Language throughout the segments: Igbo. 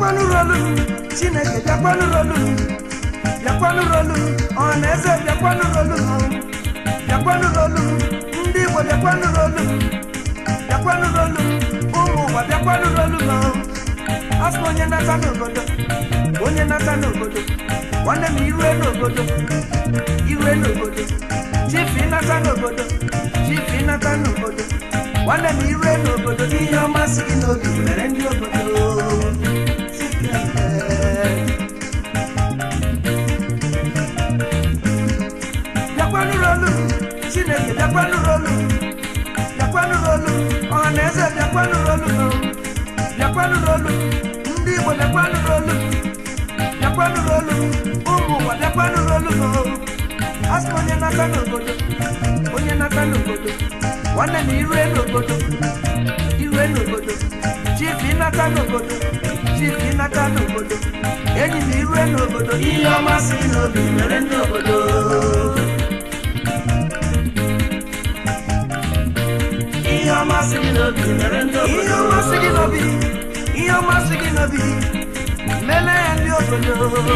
bịakwanụrolum chineke bịakwanụrolum bịakwanụrolum ọnaeze bịakwanụrolum bịakwanụrolum ndị igbo bịakwanụrolum bịakwanụrolum ụmụ ụwa bịakwanụrolum asị onye nata n'obodo onye nata n'obodo nwanne m irue n'obodo irue n'obodo chifu ịnata n'obodo chifu ịnata n'obodo nwanne m iwe n'obodo ihe ọmasị gị n'obi mere ndị obodo ụmụ na-ekwanụrụ olu na-ekwanụrụ olu ụmụ ụwa na-ekwanụrụ olu asị m onye na-aka n'obodo onye chief ịnata n'obodo chief ịnata n'obodo enyi na irue n'obodo ihe ọma si n'obi mere ndị obodo ihe ọma si n'obi mere ndị obodo ihe ọma si n'obi I am bi mele ndi obodo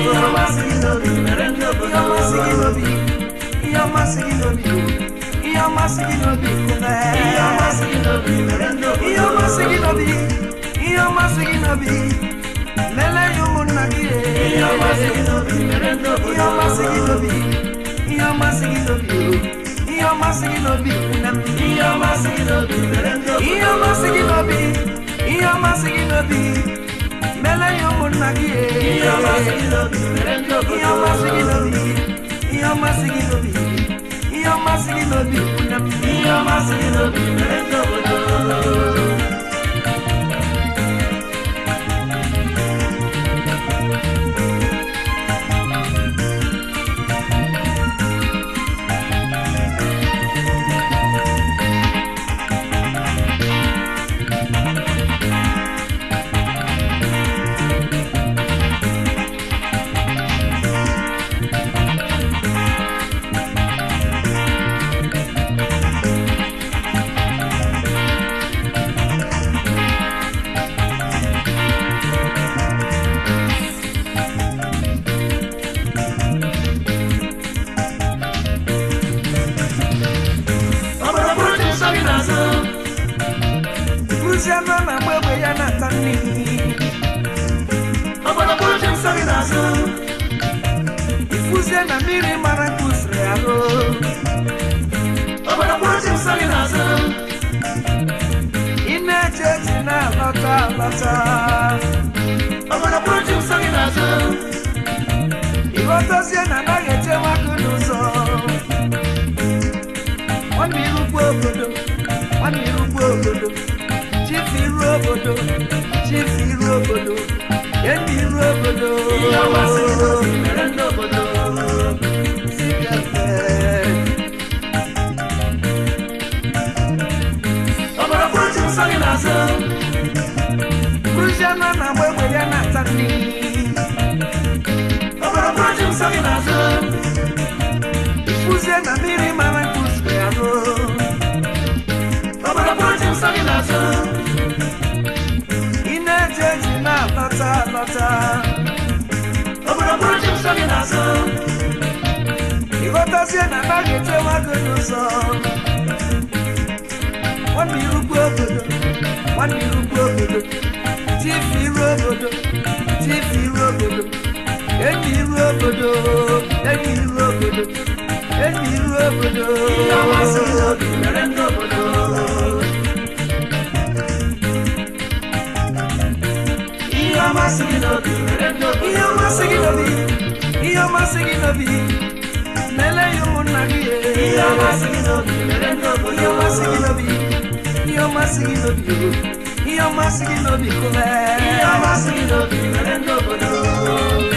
yo masiki na bi mele ndi obodo yo masiki na bi yo masiki na bi yo masiki na bi yo masiki na bi mele ndi obodo yo masiki na bi yo masiki na bi mele yo munagi yo masiki na bi mele ndi obodo yo masiki na bi yo masiki na bi Iyo masigi no bi, iyo Inyoma siginobi Mele yomun magie Inyoma siginobi Inyoma siginobi Inyoma siginobi Inyoma siginobi Inyoma siginobi Inyoma siginobi Thank you. gị n'azụ ịghọtazie ti fi rú òbòdò ti fi rú òbòdò èmi rú òbòdò. ìyàwó sí ìrọ̀lẹ́ lọ́bòdò sí kẹfẹ́. ọ̀bọ̀dọ̀ kúrú ti sọ́ni lásán kúrú ṣẹ́ náà náà wẹ́wẹ́ yẹn náà tán ni. sáré lásán. iná jẹ́jì náà lọ́tà lọ́tà. òbúròbúrò jẹ́ you lásán. ìkọ́tà sí You báàgì tí wọ́n gbẹ̀dọ̀ sọ. wọ́n ní irúgbó òbòdò wọ́n ní irúgbó òbòdò tí fi irú òbòdò tí fi irú òbòdò èmi irú òbòdò èmi irú òbòdò èmi irú òbòdò. ìyàwó àṣírí òbí mẹ́rẹ̀ ń dọ̀bọ̀dọ̀. ma singing of you. Iyo ma singing of I Iyo ma singing of you. Nele yo I Iyo ma singing of you. Iyo ma singing of you. Iyo ma singing of you. Iyo ma singing of you. Iyo ma singing of you. Iyo ma singing of you.